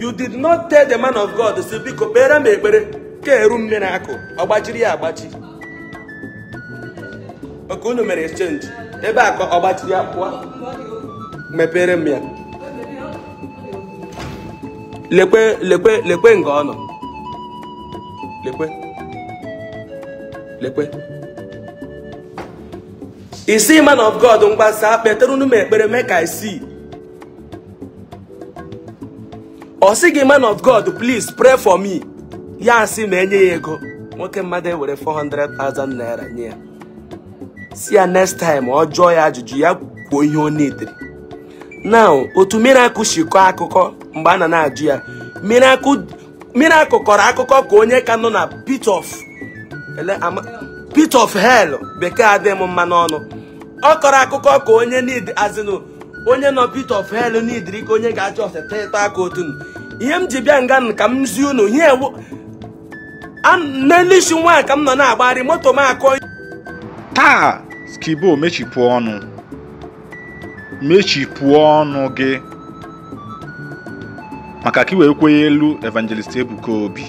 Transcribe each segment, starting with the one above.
you did not tell the man of God si biko kpere m ekpere ka eru nne na-akụ ọgbachiri ya agbachi oke unu mere exchange ebe akọ ka ọgbachiri ya pụọ mepere m ya lekwe lekwe lekwe nga ọ nọ lekwe lekwe isi man of God mgbasa kpetere unu m ekpere mee ka i see ọ sị gị man of god please pray for me ya sị ma enye ya ego nwoke mmadụ ewere 400,000 naira nye ya si ya next time ọ jụọ ya ajụjụ ya kwuo ihe ọ na otu now otu miracle akụkọ mgbe a na na-ajụ ya miracle kọrọ akụkọ ka onye ka nọ na pit of pit bekee adịghị m mma n'ọnụ ọ kọrọ akụkọ ka onye azịnụ onye nọ pit of hell n'idiri ka onye ga-achọ ọseta ịta aka otu ihe m ji bịa nga ka m zie unu ihe n'elu isi nwaanyị ka m nọ na-agbagharị moto m akọ taa skibo mechipụ ọnụ mechipụ ọnụ gị maka ka i wee kwenye elu evangelist Ebuka Obi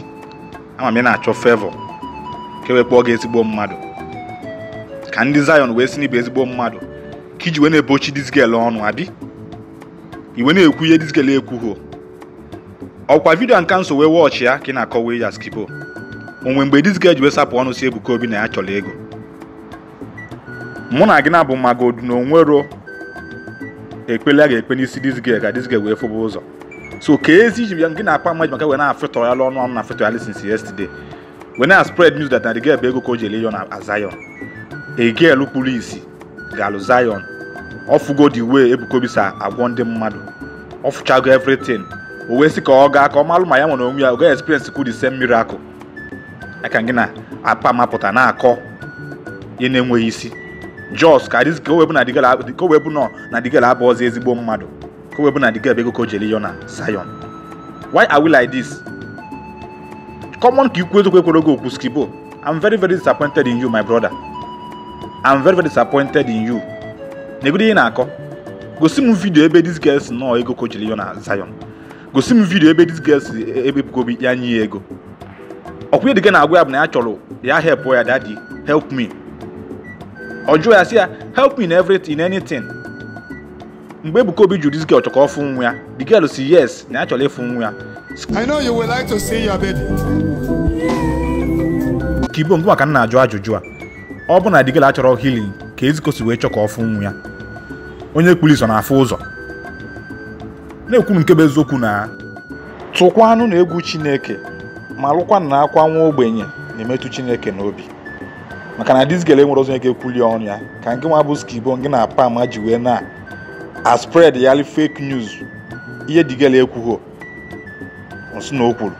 ama m ị na-achọ fevọ ka e wee kpọọ gị ezigbo mmadụ ka ndị Zion wee si n'ibụ ezigbo mmadụ ka iji wee na-ebochi disgel ọnụ abi iwe na-ekwu ihe disgel ekwughị ọkwa vidio nka nso wee wọọchị ya ka ị na-akọwa ya skipo onwe mgbe dizga ji wee sapụ ọnụ si Ebuka Obi na ya chọrọ ego mụ na gị na-abụ maka odu na onwero ekpele a ga-ekpe n'isi dizga ka dizga wee fụba ụzọ so ka ezi iji gị na-akpa mmadụ maka wee na-afịtọ ya ọnụ ọnụ na afịtọ ya since yesterday wee na spread news that na the girl ego ka o ji ele yon na Zion a girl kpuru isi ga-alụ Zion ọfụgo the way Ebuka Obi si agwọ ndị mmadụ ọfụchago everything o wee sị ka ọ gaa ka ọ malụ ma ya nwere onwe ya oge experience kwuru ise mmiri akụ aka gị na apa mapụta na-akọ ihe na-enweghị isi jos ka dịzi ka nọ na digel abụ ọzọ ezigbo mmadụ ka na digel ego jeli na sayon why are we like this common ka ikwu ekwere oge okwu skibo i'm very very disappointed in you my brother na-egodo m vidio ebe ego gosi m vidio ebe dis girl si e, ebepụgobi ya nye ya ego ọkwụnye dịga na-agwa ya bụ na ya chọrọ ya help ya daddy help me ọ ya si ya help me in everything in anything mgbe Ebuka Obi jụrụ dis girl chọrọ ọfụ nwa ya the girl si yes na ya chọrọ ịfụ nwa ya I know you like to see your baby. ka ibo mbụ maka nna ajụ ajụjụ a ọ bụ na digela achọrọ healing ka ezikosi wee chọkọ ọfụ nwa ya onye kpuru iso na-afụ ụzọ na-ekwu nke bụ eziokwu na anụ na egwu chineke ma lụkwanụ na akwa nwa ogbenye na-emetụ chineke n'obi maka na dizgele nwere ọzọ ga-ekwuli ọnụ ya ka nke nwa bụ skibo nke na apa ama ji wee na a spread yali fake news ihe digele ekwughị nsị na o kwuru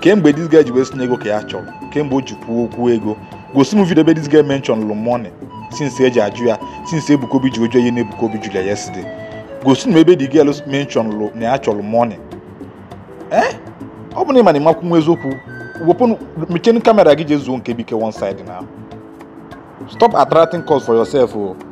kemgbe dizgele ji wee si ego ka ya chọrọ kemgbe o ji kwuo okwu ego gosi m vidio ebe dizgele menchọn lụ since eji ajụ ya since ebukobi ji ojuo ihe na ebukobi jụrụ ya yesterday Go na ebe the girls mention lụ na ya chọrọ money ee eh? ọ bụ na ị ma na ịmakwu nwa eziokwu wepụ mechenu kamera gị je zuo nke bike one side now. stop attracting calls for yourself o oh.